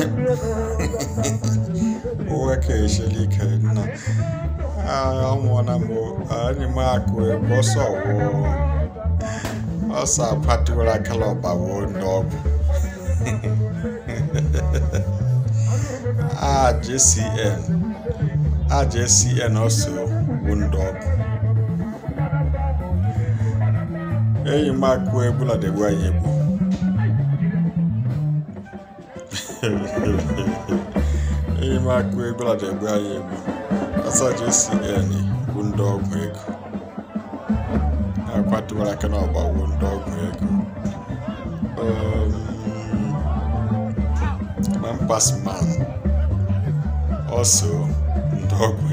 nna ehlelike na amona mo ani mako boso wo osa patula kaloba wo nob ah jcn ah jcn also wo nob eyi mako ebula dị gwa yebu enyi m akụ egbelada egbe egbu asaja bụ ndị ọgwụ ego akwatụwara aka na ọgbawo ndị ọgwụ ego um, na mpasman ọsọ ndị ọgwụ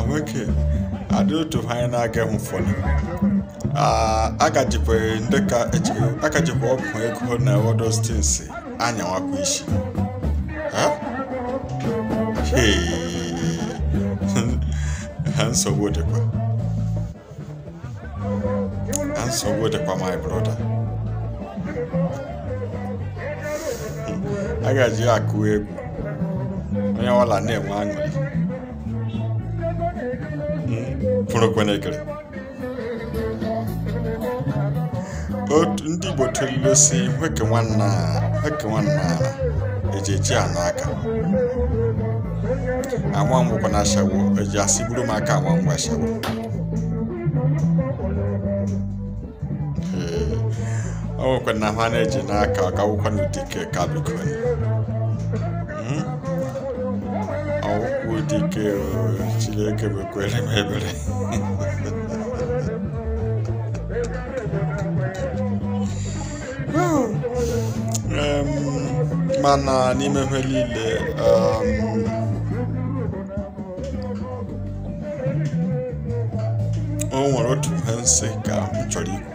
a adị otu anyị na-agaghị n'ụfọdụ. agajikwere ah, ndị ka e agajikwa ọgwụ ego na wodostins anyawakwa isi ha nsogbu dịkwa ha nsogbu dịkwa my brother agaji akụ egwu onye ọbụla na-enwe aṅụrị pụrụ hmm, ndị Igbo telile si nweke nwanna nweke nwanna eji eji anụ aka anwa ngwụkwa na ashawo eji asị buru m aka anwa ngwa ashawo ọ nwekwa na ha na-eji n'aka ọ gawụkwa n'ụdike ka bikoni hmm? ọwụkwụ dike chileke bekwere m ebere mana n'ime ihe niile um, o nwere otu ihe nsị ka m chọrọ ikwu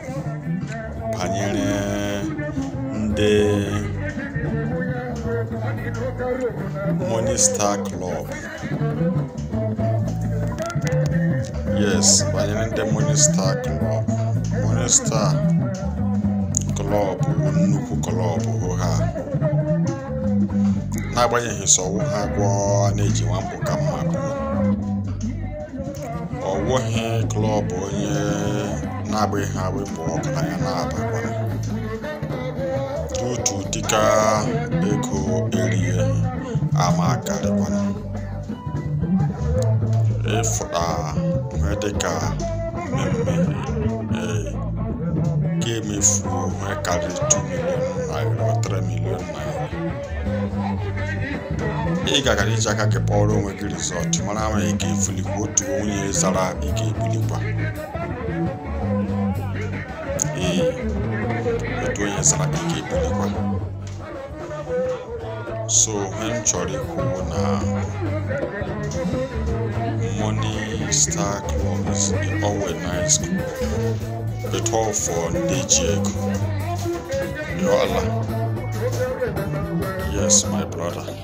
banyere ndị monista klọb yes banyere ndị monista klọb monista klọb nnukwu klọb ha agbanyeghị sọwụ ha agwọ na-eji mbụ ka mma pụọ ọ wụghị klọb onye na-agbaghị ha wepụ ọgaranya na-abakwara otu dịka ego erie ama karịkwana ịfụta ihe dịka mmemme ee nke emefu onwe karịrị 2 naira 3 milion naira ị iji aka gị onwe gị rizọtụ mara ma ị ga ka otu onye zara ike ga-ebulikwa ee otu onye zara ike ga-ebulikwa so ihe chọrọ ikwu na Money Star Club is always da tofon da jeko yo allah yes my brother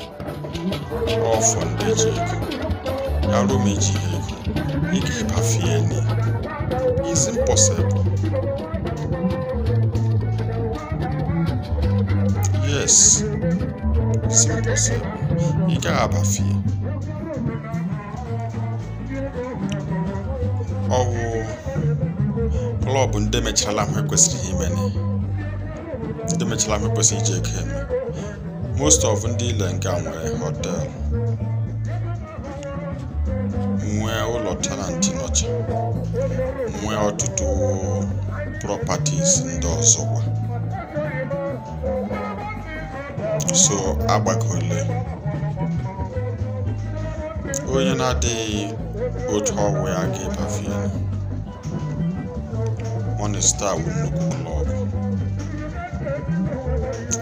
tofon da jeko yaro mai jeko ike fafiye ne It's impossible yes it's impossible ike abafiye ọwụ ọlụ bụ ndị mechara ihe kwesịrị ime ndị mechara ihe kwesịrị iji eke eme most of ndị ile nga nwere hotel nwee ụlọ tenanti nọcha nwee ọtụtụ properties ndị ọzọkwa so agbakọle onye na-adịghị otu ọgwụ ya ga-ebafe Minista wu nnukwu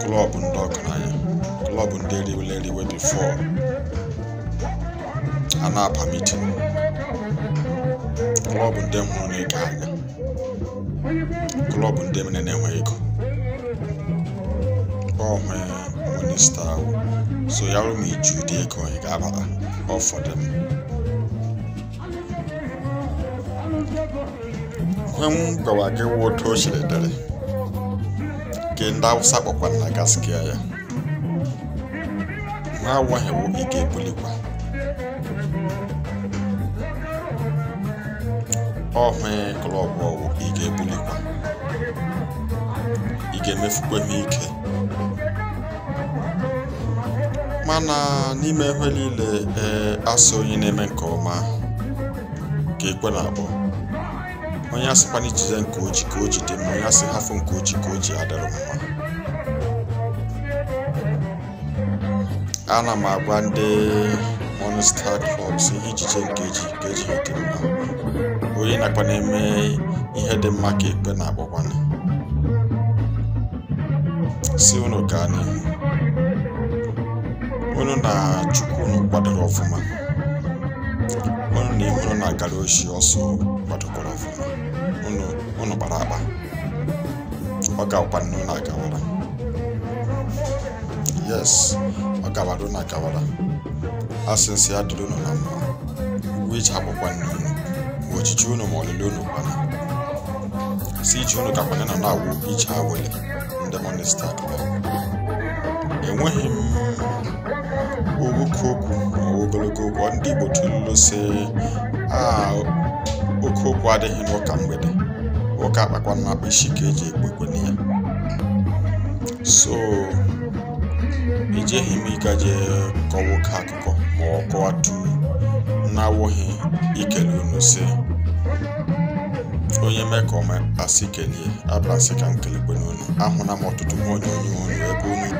klọb klọb ndị ọgaranya klọb ndị riwere eriwe bifo a na-aba mitin klọb ndị m hụrụ anya klọb ndị mere na-enwe ego ọhụụ minista ahụ so ya rụ m iju ụdị ego ị ga-abata ọfọdụ m hem gawa gị wuto chịrịdịrị nke ndị awụsa kpọkwa na gaskia ya ha wo ike ebulikwa ọhụ klọb ọwụ ị ga-ebulikwa ị ga ike mana n'ime ihe niile ee asọ onye na-eme nke ọma ka ekwe na-akpọ onye asịkwana ijize nke oji ka o ji mma onye asị hafụ nke oji ka o ji adịrị mma ana m agwa ndị Monster Clubs ihe ijije nke eji dị mma onye nakwa na-eme ihe dị mma ka ekpe na-agbakwana si unu gaa n'ihu unu na chukwu unu kwadoro ọfụma unu na ihu na-agara oshi ọsọ kwadokwa kpara akpa ọ gakwa na agawara yes ọ gawara na akawara asịsị ya dịrị unu na mma ugwu iji abụkwa nne unu ma ochichi unu ma olili unu kwana si ichi unu kakwanye na na-awụ ije awele ndị monista enweghị m owoke okwu ogologo okwu ndị igbo tụlụlụ si ah, oke okwu adịghị n'ụka mgbede oke akpakwa na akpa isi ka eji ekpekwe ya so ejeghị m ịga jee kọwa oke akụkọ ma ọ kọwatu na-awụghị ikele unu si onye mee ka ọma asị kelie abịara ka m kelekwe n'unu ahụla m ọtụtụ nwa onye onye ebe unu